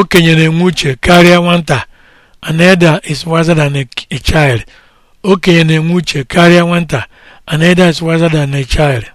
okenye na-enwe uche karịa nwata an elder is wiser than a, child okenye na-enwe uche karịa nwata an elder is wiser than a child